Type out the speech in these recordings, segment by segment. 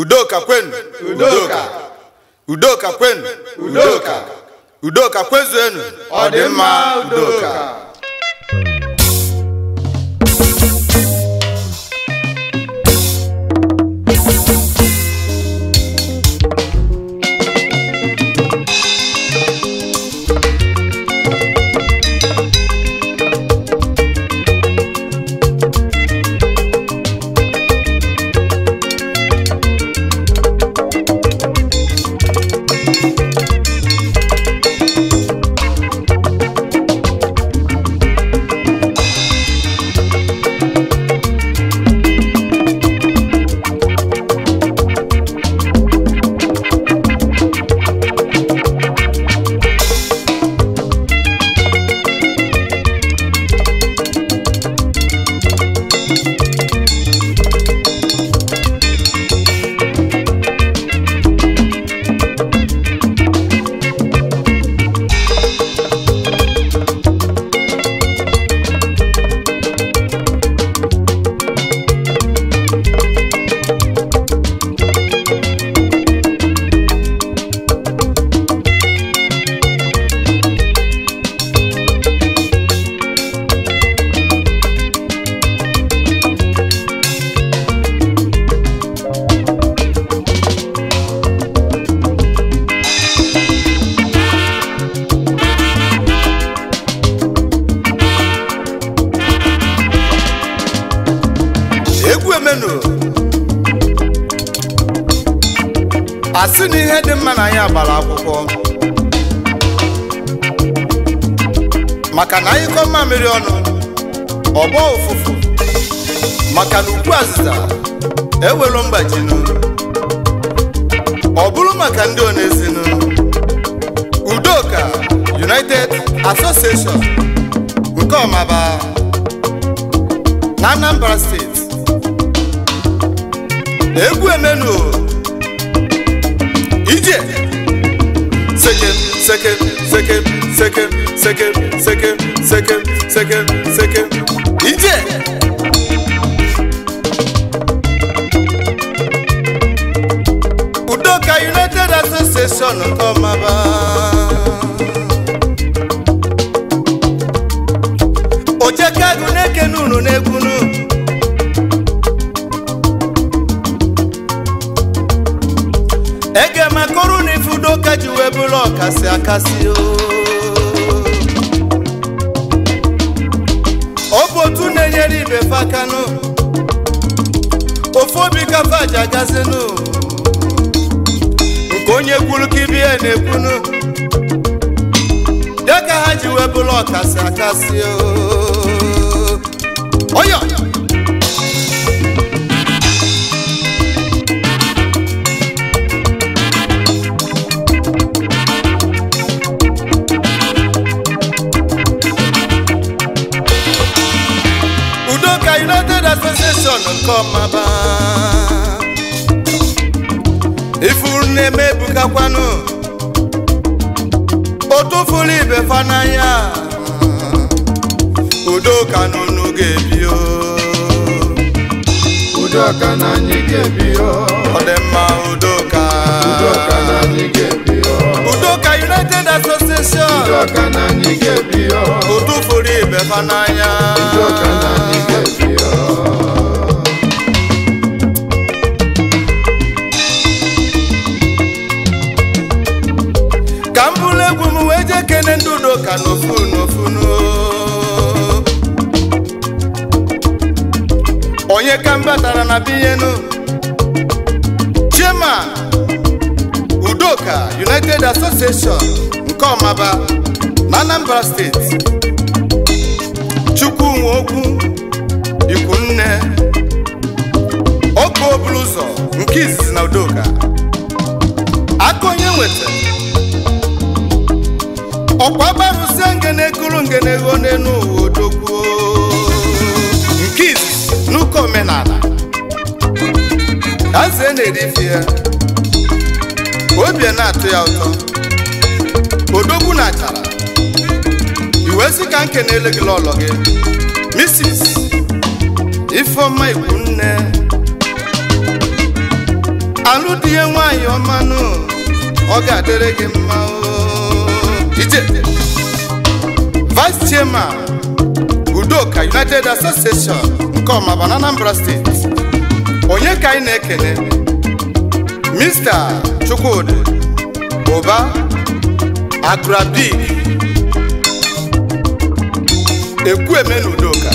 udoka kwenu udoka udoka kwenu udoka udoka enu! ọ dị mma udoka na ana ịkọ mmamịrị ọnụ ọgbọ ụfụfụ maka na ukwu azịza ewelu mgbajinu ọ bụrụ maka ndị onezinu udoka united association nke ọmaba na anambra steeti egwu emenu ije sejem second, second, second, second, second, second, second, second. DJ! Udoka United Association Komaba. Ojeka Guneke n'ekunu ụlọ ọkasị akasị ọ na-enyere ibe fakanụ ofu obi kafa aja gazinụ nke onye kwuru ka ibe ya na-ekwunu dịka ha ji wee bụrụ ọkasị akasị oyo kọnjọkshọn nke ọmaba ifuru na-eme ebukakwanụ otufuru ibe fa n'anya udoka n'unu ga-ebio udoka na anyị ga-ebio ọ dị mma ka udoka na anyị ga united association udoka na anyị ga-ebio otufuru ibe fa n'anya batara na biyenu chairman udoka united association nke ọmaba na anambra steeti chukwunwokwu ikwunne oke ọbụla ụzọ nke izizi na udoka aka onye nweta ọkwa na ngene ngenego na ego ụwa odogwuo oke omenala eze na ya obi na-atụ ya ụtọ odogwu na achara iwe ka nke na-ele lọlọ gị Mrs. Ifeoma Ikwunne alụ di ya nwaanyị ọmanụ ọ ga-adịrị gị mma ije Vice Chairman Udoka United Association come bụ Anambra steeti onye ka ị na-ekele Mr. Chukwudi Uba agrabi Ekwueme Udoka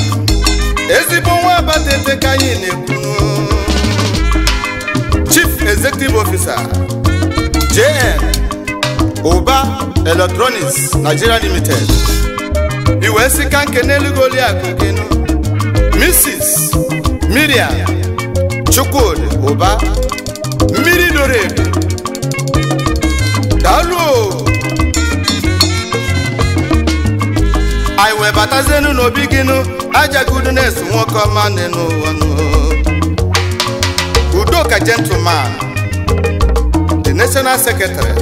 ezigbo nwa abatete ka anyị na-ekwu Chief Executive Officer JN Uba Electronics Nigeria Limited iwe sika nke n'elu goliakụ gịnụ Mrs. Miriam Chukwudi uba mmiri dore edo daalụ anyị wee zenu n'obi gịnụ ajagudu nwoke ọma nị n'ụwa udoka gentleman the national secretary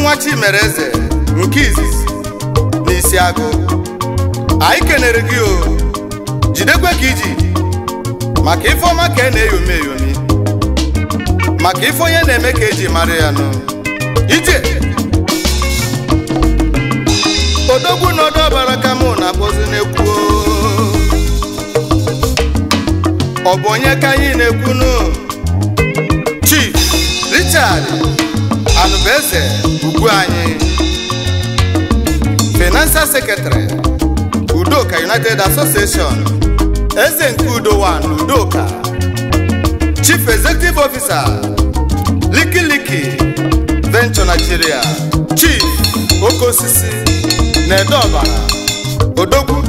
nwa Mereze nkizi nke izizi anyị kenere gị o jidekwe ka iji maka ife ọma ka ị e na-eyomi eyomi maka ife onye na-eme ka eji mara ya nụ ije odogwu na ọbara ka mụ na-akpọzi na-ekwu ọ bụ onye ka anyị na-ekwu nụ Chief Richard Anubeze ugwu anyị Financial Secretary Udoka United Association, Ezenkudo One Udoka, Chief Executive Officer, Liki Liki, Venture Nigeria, Chief Okosisi, Nedoba, Odoku,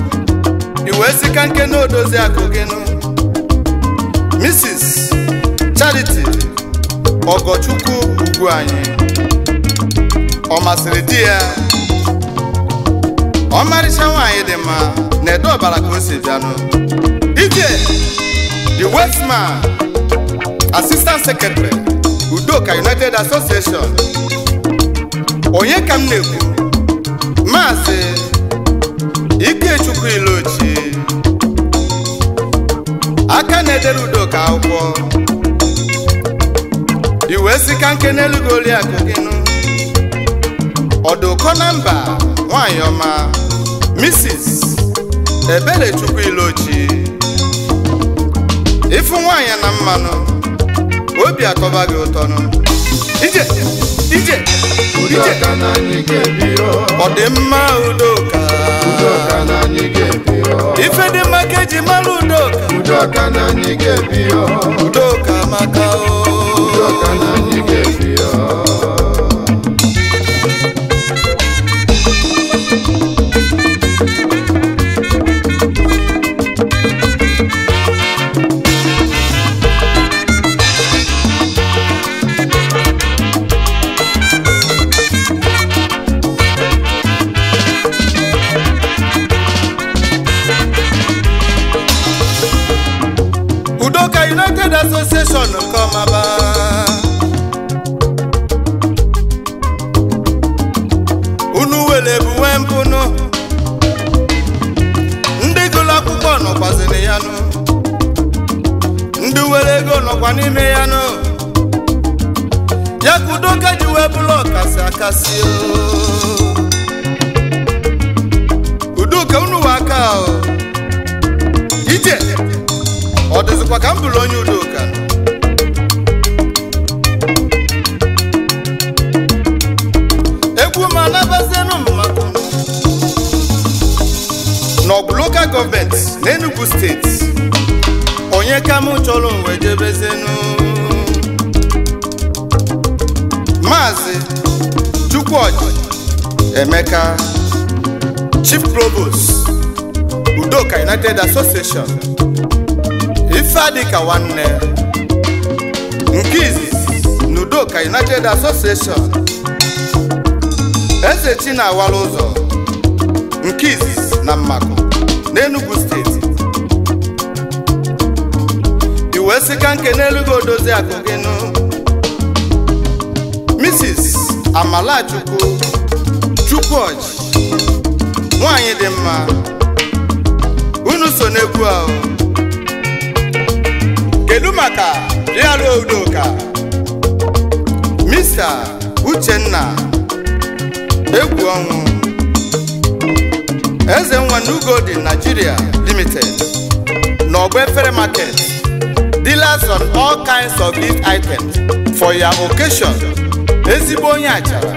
Uwezi Kankeno Dozia Kogeno, Mrs. Charity, Ogochuku Uguanyi, Omasiri Dia, Omasiri Dia, ọmarịcha nwaanyị dị mma na edo ọbara ka o si bịanụ ije the westman assistant secretary udoka united association onye ka m na-ekwu maazị ikechukwu aka na-edere udoka akwụkwọ iwe sika nke n'elu gị gịnụ ọdụkọ na mba nwanyị ọma Mrs. Ebelechukwu Ilochi ịfụ nwanyị na mmanụ obi atọba gị ụtọ nụ ije ije ije ọ dị mma udoka ife dị mma ka eji mara udoka udoka maka o Udoka United Association kọ́ máa bá. Chief Provost Udoka United Association Ifeadịka nwanne Nkizi izizi na Udoka United Association Eze Chinawara Ụzọ nke na Mmakụ n'Enugu steeti iwee sika nke n'elugo odozi akụ Mrs. Amalachukwu Chukwuoji nwaanyị dị mma unu so n'egwu ahụ kedu maka rịara udoka mista uchenna egwu ọnwụ eze nwa nugodi nigeria limited n'ọgba efere market dealers on all kinds of gift items for your occasion ezigbo onye achara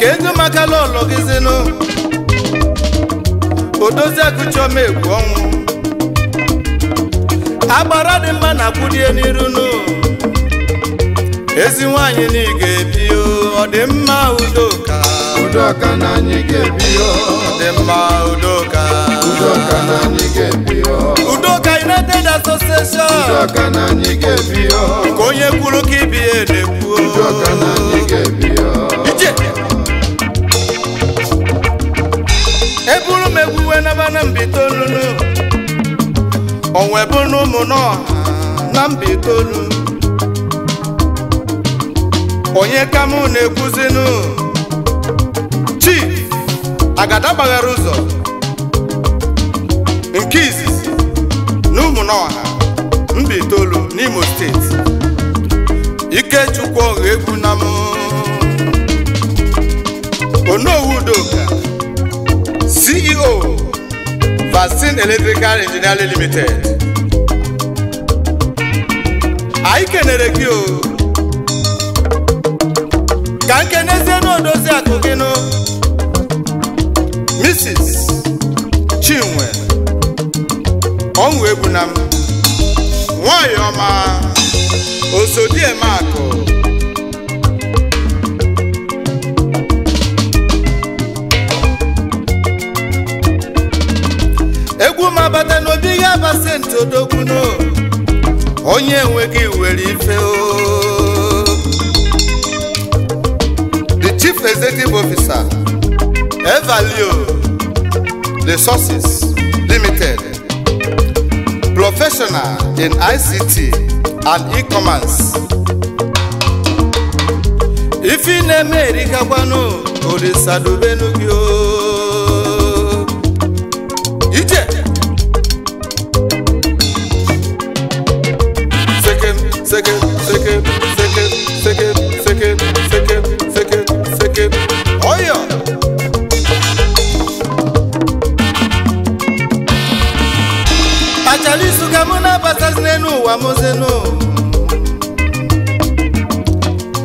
kedu maka lọlọgizinụ odoziaguchioma egwu ọnwụ agbara dị mma na kwudie n'iru nụ ezi nwanyị na ị ga-ebi ọ dị mma udoka udoka na anyị ga-ebi ọ dị mma udoka udoka na anyị ga-ebi udoka United Association udoka na anyị ga-ebi ka onye kwuru ka ibi ya edekwuo na mbitolu onwe bụ n'ụmụ n'ọha na mbitolu onye ka mụ na-ekwuzinu chief agada gbaghara ụzọ nke izizi na ụmụ n'ọha mbitolu n'imo steeti ikechukwu ọha egwu na mụ Basin Electrical Engineering Limited anyị kenere gị o ka nkenezie n'odozi akụ gị nụ Mrs. Chinwe ọnwụ egbu na m nwanyị ọma osodieme akụ tupu m n'obi ga aba senti onye enweghị were ife ooo. the chief executive officer Evalio Resources Limited professional in ICT and e-commerce ife ị na-eme erikakwanụ orisadubenu o nwoke ọya ka mụ na-abatazi n'elu ụwa mozenu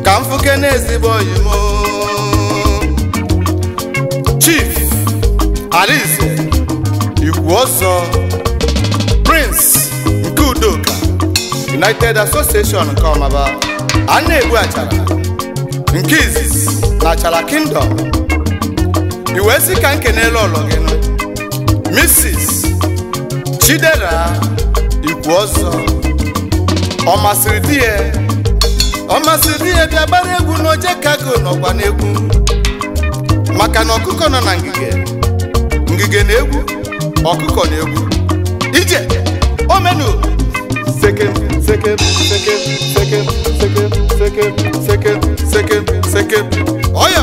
ka m fụke n'ezigbo oyimo chief alize ikwu ọzọ prince nke udoka united association nke ọmaba a na achara nke izizi E. E na Achala Kingdom i wee sị ka nke n'elu ụlọ gị Mrs. Chidera ọzọ ọ masịrị di ya ọ masịrị di ya bịa gbara egwu n'oje kago n'ọgba n'egwu maka na ọkụkọ nọ na ngige ngige na egwu ọkụkọ na egwu ije omenu sekem sekem sekem sekem sekem sekem sekem sekem sekem ka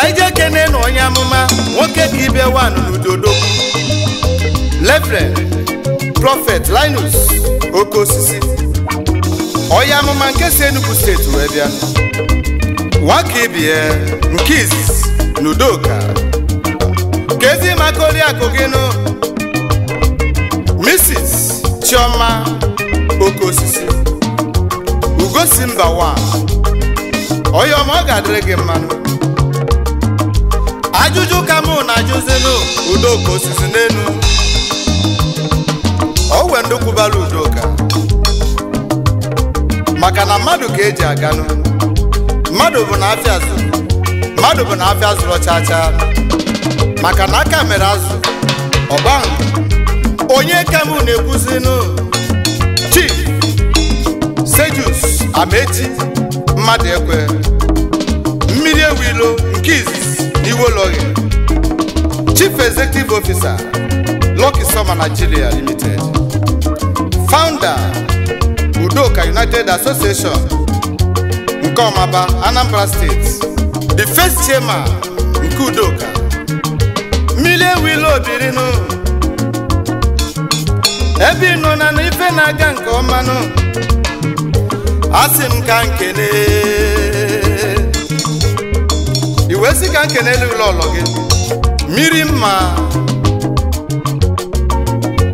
anyị jee kene na onye amụma nwoke dị ibe wan n'udodogwu lefren prọfet linus oke osisi onye amụma nke si enugu steeti wee bịa nwaka ibie nke izizi na udoka ka ezi maka oriakụ gị nụ Mrs. Chioma Okeosisi Ugosi mba wa onye ọma ọ ga-adịrị gị mmanụ ajụjụ ka mụ na-ajụzinụ Udoka Osisi n'elu o wee ndị kwubara Udoka maka na mmadụ ka eji aganụ mmadụ bụ na afịa zụrụ mmadụ bụ na afịa chaa chaa maka na aka mere azụ ọgba onye ka m na Chief Sejus Ameti mmadụ ekwe mmiri ewilo nke izizi n'iwologhe Chief Executive Officer Lucky Soma Nigeria Limited Founder Udoka United Association nke Ọmaba Anambra State The first chairman nke Udoka mmiri ewilo obirinu ebe nọ na n'ife na-aga nke ọmanụ asị m ka nkene iwe si ka nkene elu ụlọ gị mmiri mma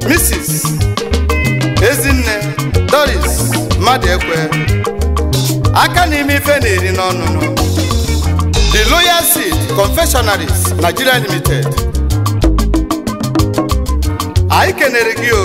Mrs. Ezinne Doris mmadụ ekwe aka n'ime ife na-eri n'ọnụnụ The Loyal Seed Confectionaries Nigeria Limited anyị kenere gị o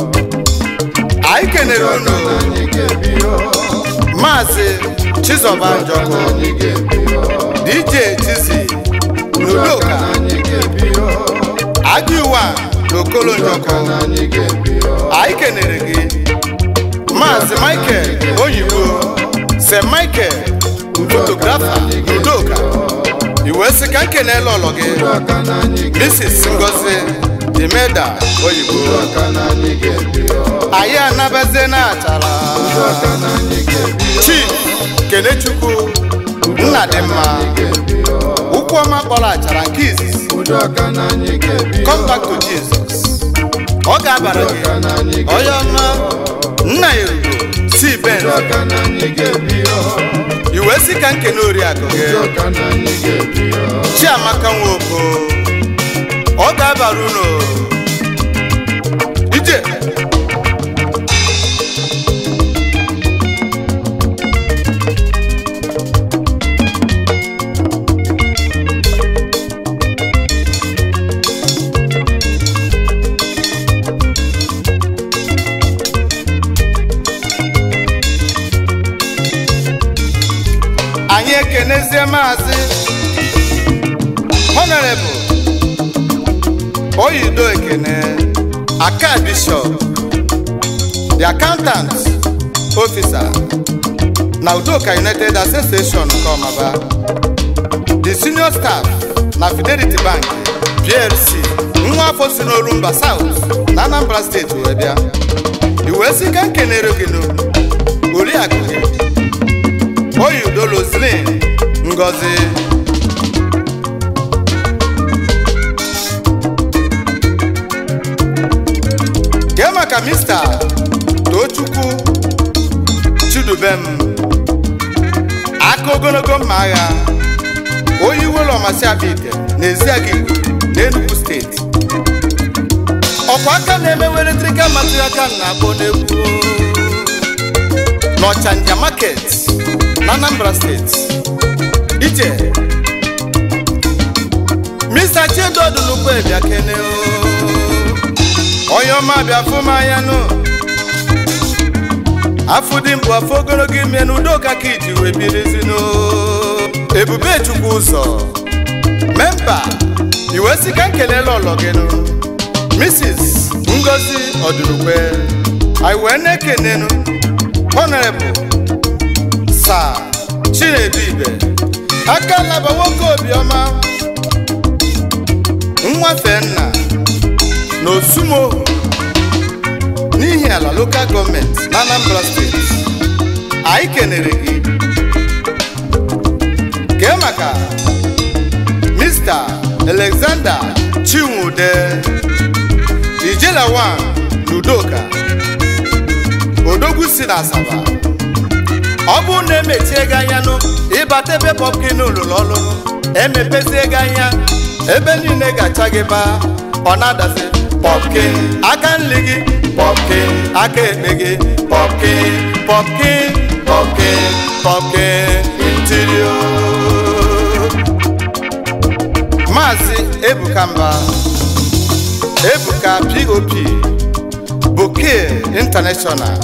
ikenere unu maazị Chizoba Njọkụ DJ Chizi Nuluka, Agiwa na Okolo Njọkụ anyị kenere Michael Oyibo Se Michael fotografa Ludoka iwe sị ka nkenele ọlọ Mrs. Ngozi Jimeda oyibo anyị anabeze na achara chi Kenechukwu nna dị mma ụkwụ ọma kpọrọ achara nke izizi come back to Jesus ọ ga-abara gị onye ọma nna ya erugo si ben iwe si ka nkene oriakụ gị Chiamaka Nwoko oga baruno ije. anyị ekenezie maazị oyi Udo Ekene, Aka Bishop, the accountant officer na Udoka United Association nke Ọmaba, the senior staff na Fidelity Bank PLC, nwa afọ si South na Anambra steeti wee bịa iwee sị ka n'olu oriakụ gị Udo Roselyn Ngozi ka mista Tochukwu Chidubem aka ogologo mma agha onye iwelu ọmasiabike na Eziagigwe na steeti ọkwa aka na-emewe eletrikal material kan na-akpọ n'Ọcha n'Ọchanja market na Anambra steeti ije Mr. Chiedo Odunukwu Ebiakene onye ọma bịa afụ ya nụ afụ dị mbụ afọ ogologo ime na udoka ka iji wee birizinụ ebube chukwu ụzọ memba iwe si ka ọlọ gị Mrs. Ngozi Ọdụrụkwe anyị wee na-ekenenụ honorable Sir Chinedu Ibe aka laba nwoke Obioma, nwafe na Osumo n'ihi ala local gọọmenti na Anambra steeti anyị kenere gị kee maka Mr. Alexander Chinwude Ijelawan n'udoka Odogwu si na Asaba ọ bụrụ na emechie gị anya nụ ịbata ebe pọpkin lụrụ ọlụlụ emepezie ego anya ebe niile gacha gị baa ọ na-adazi pọpki aka nli gị pọpki aka eme gị pọpki pọpki pọpki pọpki intirio maazị ebuka mba ebuka pop bouquet international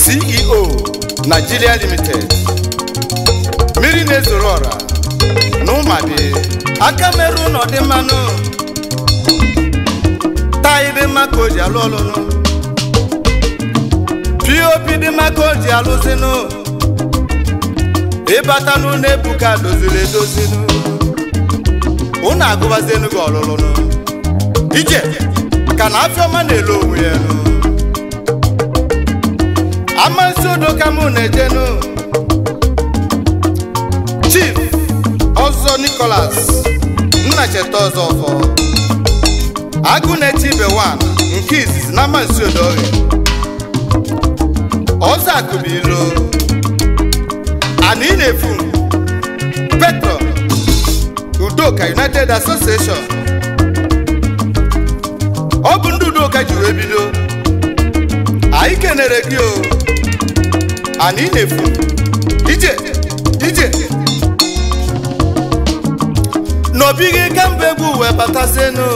ceo nigeria limited mmiri na-ezoro ọra na ụmadi aka taị dị mma ka o ji alụ ọlụlụ pop dị mma o ji alụzinụ ịbata n'ụlọ ebuka doziri edozinụ ụnụ gị ọlụlụnụ ije ka na afịọma na-ele onwe ya amasị udo ka mụ na-ejenụ chief ọzọ nikolas nna cheta ọzọ ọfọ. agụ na-eti nke izizi na Mazi Odoye ọzọ akụbilu ana ị na-efu petro Udoka United Association ọ bụ ndị Udoka jiri ebido anyị kenere gị o ana ị na-efu ije ije n'obi kemgbe egwu wee batazienu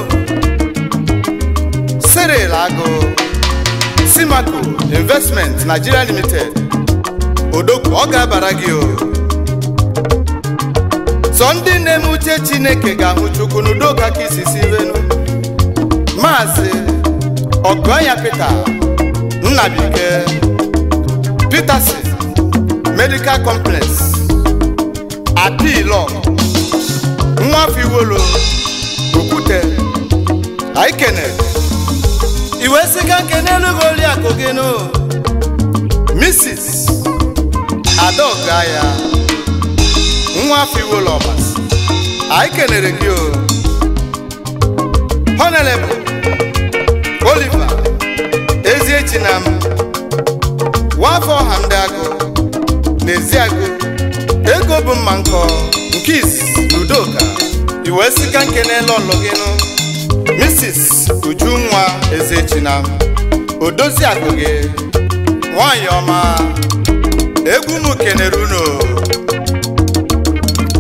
Cyril Agụ Simaco Investment Nigeria Limited odogwu ọ ga-abara gị o sọ ndị na-eme uche Chineke ga-ahụ Chukwu n'udo kaka isi sivenu Maazị Ogoya pete Nnabike petersin Medical Complex Apilo Nwafiwolo Okwute Aikene iwe siga nke n'elughị oriakụ gị no Mrs. Adaoka ya nwa Fiwolọba anyị kelere gị o oliva ezi Eziechi na m nwafọ ọha ndị agụ n'ezi agụ ego bụ mma nkọ nke izizi na Udoka iwe siga nke n'elu ọlụ gị nụ Mrs. Ujunwa Ezechina odozi akụ gị egwu m kenere unu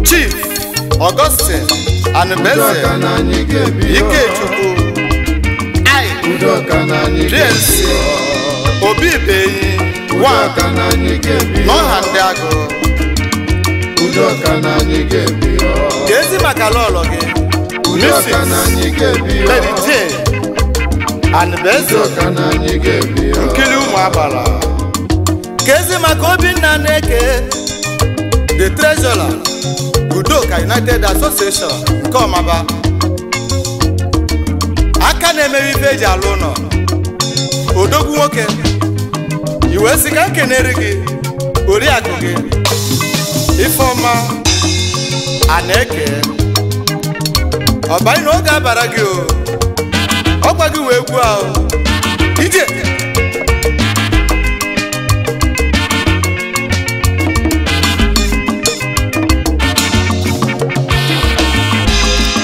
Chief Augustine Anubeze Ikechukwu Prince Obi Beyi n'ọha ndị agụ ka ezi maka gị Mrs. Lady Jane and Bezo maka Obinna na-eke the treasurer Udoka United Association nke Ọmaba aka na-emere ife eji alụ ụlọ odogwu nwoke iwe sika nkenere gị oriakụ gị ifeọma a eke ọbanyị na oge abara gị o ọkwa gị wee gwu ije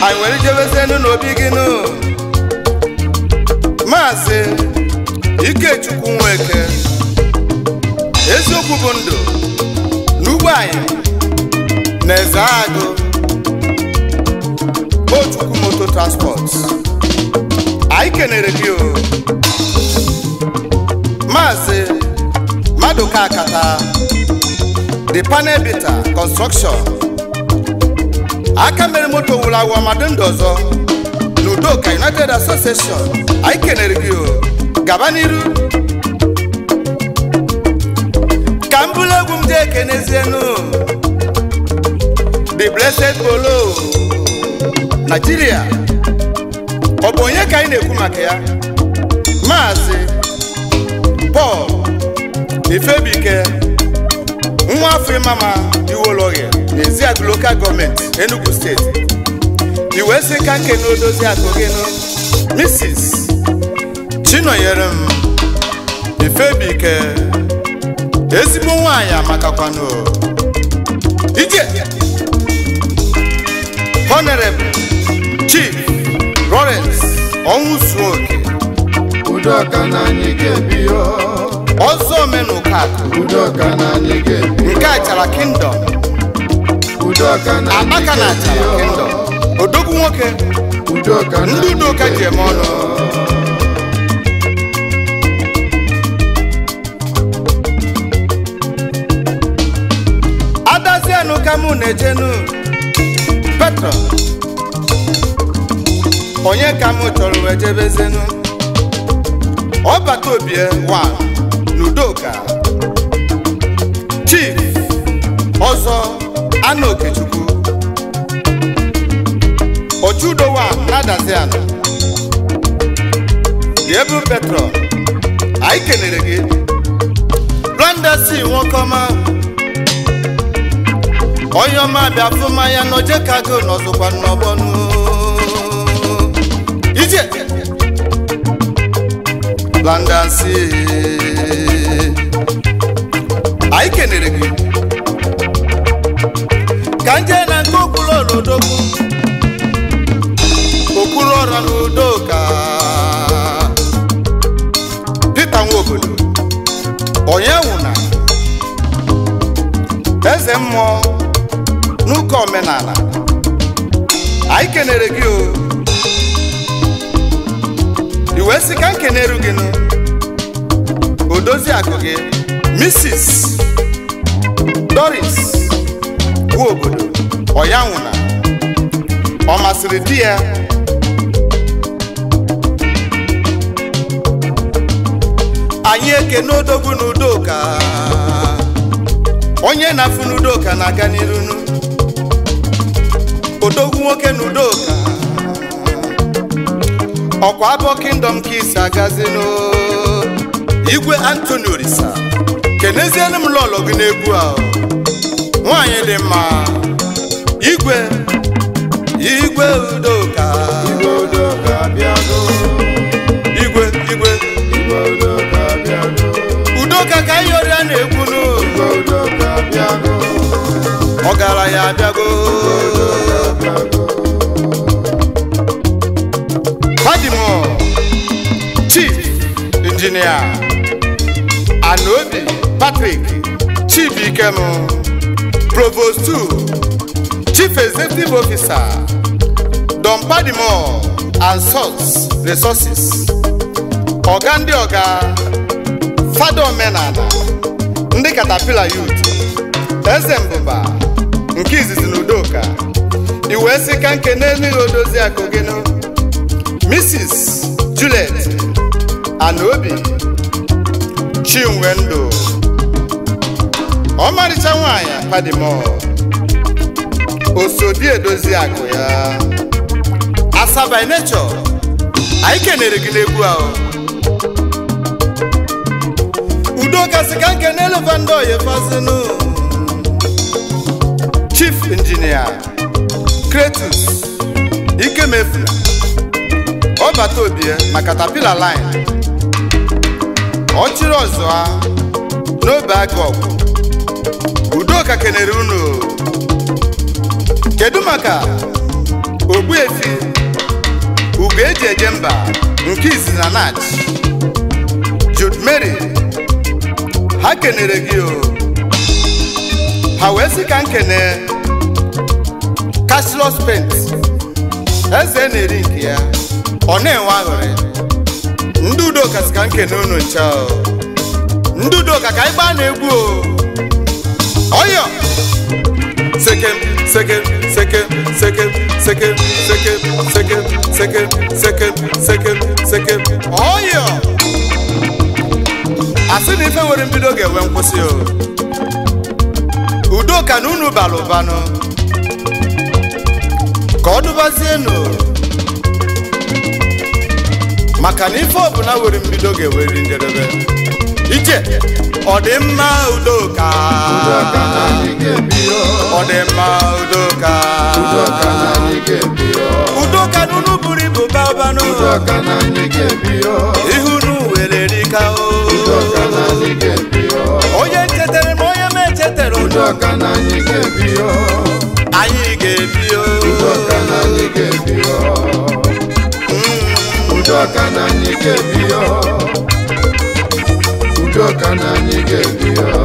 anyị nwere ijebezenu n'obi gị nụ maazị ikechukwu nweke eziokwu bụ ndụ n'ugbo anyị na eze transport anyị kenere gị o maazị Maduka Akata the panel bita construction aka mere moto wuru awụ ọmadụ United Association anyị kenere gị o gaba n'iru ka the blessed bolo Nigeria bụ onye ka anyị na-ekwu maka ya maazị Paul Ifebike nwa afọ ịmama Iwologhe n'ezi agụ lokal gọọmenti Enugu steeti Iwe sị ka nke na odozi akụ gị nụ Mrs. Chinonyere m Ifebike ezigbo nwaanyị amakakwanụ ije honorable chief ọnwụ zuo oke ọzọ omenụka udoka nke a chara kingdom udoka na anyị ga-ebi achara kingdom odogwu nwoke ndị udoka ji eme ọnụ adazienụ ka mụ na-ejenu petro onye ka m chọrọ wee jebezenu ọbata obie wa n'udoka chief ọzọ ana okechukwu ochudowa nadazi ala diebu petrol anyị kelere gị blondesi nwokọma onye ọma bịa fụ mmanya n'ojekago n'ọzọkwa n'ọgbọnụ DJ Landasi anyị kenere gị ka nje na nke okpuru ọrụ odogwu okpuru ọrụ na udo ka Peter Nwobodo onye nwụna eze mmụọ n'ụka omenala anyị kenere gị o wee sị ka nke na-eru gị nụ odozi akụ gị Mrs. Doris bụ obodo ọya nwụna ọ masịrị di ya anyị eke odogwu na onye na-afụ n'udoka na-aga n'iru odogwu nwoke nudoka. ọkwa abụọ kingdom kings agazino igwe antoni orisa kenezienụ m lọlọ gị n'egwu a nwanyị dị mma igwe igwe udo udoka igwe udoka bịago igwe igwe igwe udoka bịago udoka ka ihe ọrịa na-egwu nụ igwe udoka bịago ọgaranya abịago Fadimo Chief Injinia Anobi Patrick Chief Ikem Provost 2 Chief Executive Officer Don Padimo and source Resources Ọga ndị ọga fada omenala ndị katapila youth eze mbụba nke izizi na udoka iwee sika nke na-enweghị odozi akogeno Mrs. Juliet Anobi Chinwe ọmarịcha nwanyị padimo osodi edozi akụ ya Asaba inechọ, anyị kenere gị n'egwu ahụ udo kasị ka nke n'elevandị oyefazinu Chief Engineer Kretus Ikemefuna kpọbata obi na eh, katapila line ọ chịrị ọzọ ha ah, n'obe aka ọgwụ udoka kelere unu kedu maka efi ugo eji eje mba nke izi na nach Jude Mary ha kenere gị o oh. ha wee sị ka m kene Pent eze na-eri nke ya ọ na-enwe aghụrị ndị udoka si ka nkene unu ncha ndị udoka ka anyị na egwu ọyọ sekem sekem sekem sekem sekem sekem sekem sekem sekem sekem sekem ọyọ asị na ife nwere mbido ga-enwe nkwụsị o udoka na unu bara ụbanụ ka ọ dụbazienụ maka na ife ọbụla were mbido ga-eweri njedebe iche ọdịmma udoka ọdịmma udoka udoka n'unu buru ibu babanụ ihunu were rika o onye chetara ma onye ma echetara ụdọ udoka na anyị ga-ebi ya na anyị ga-ebi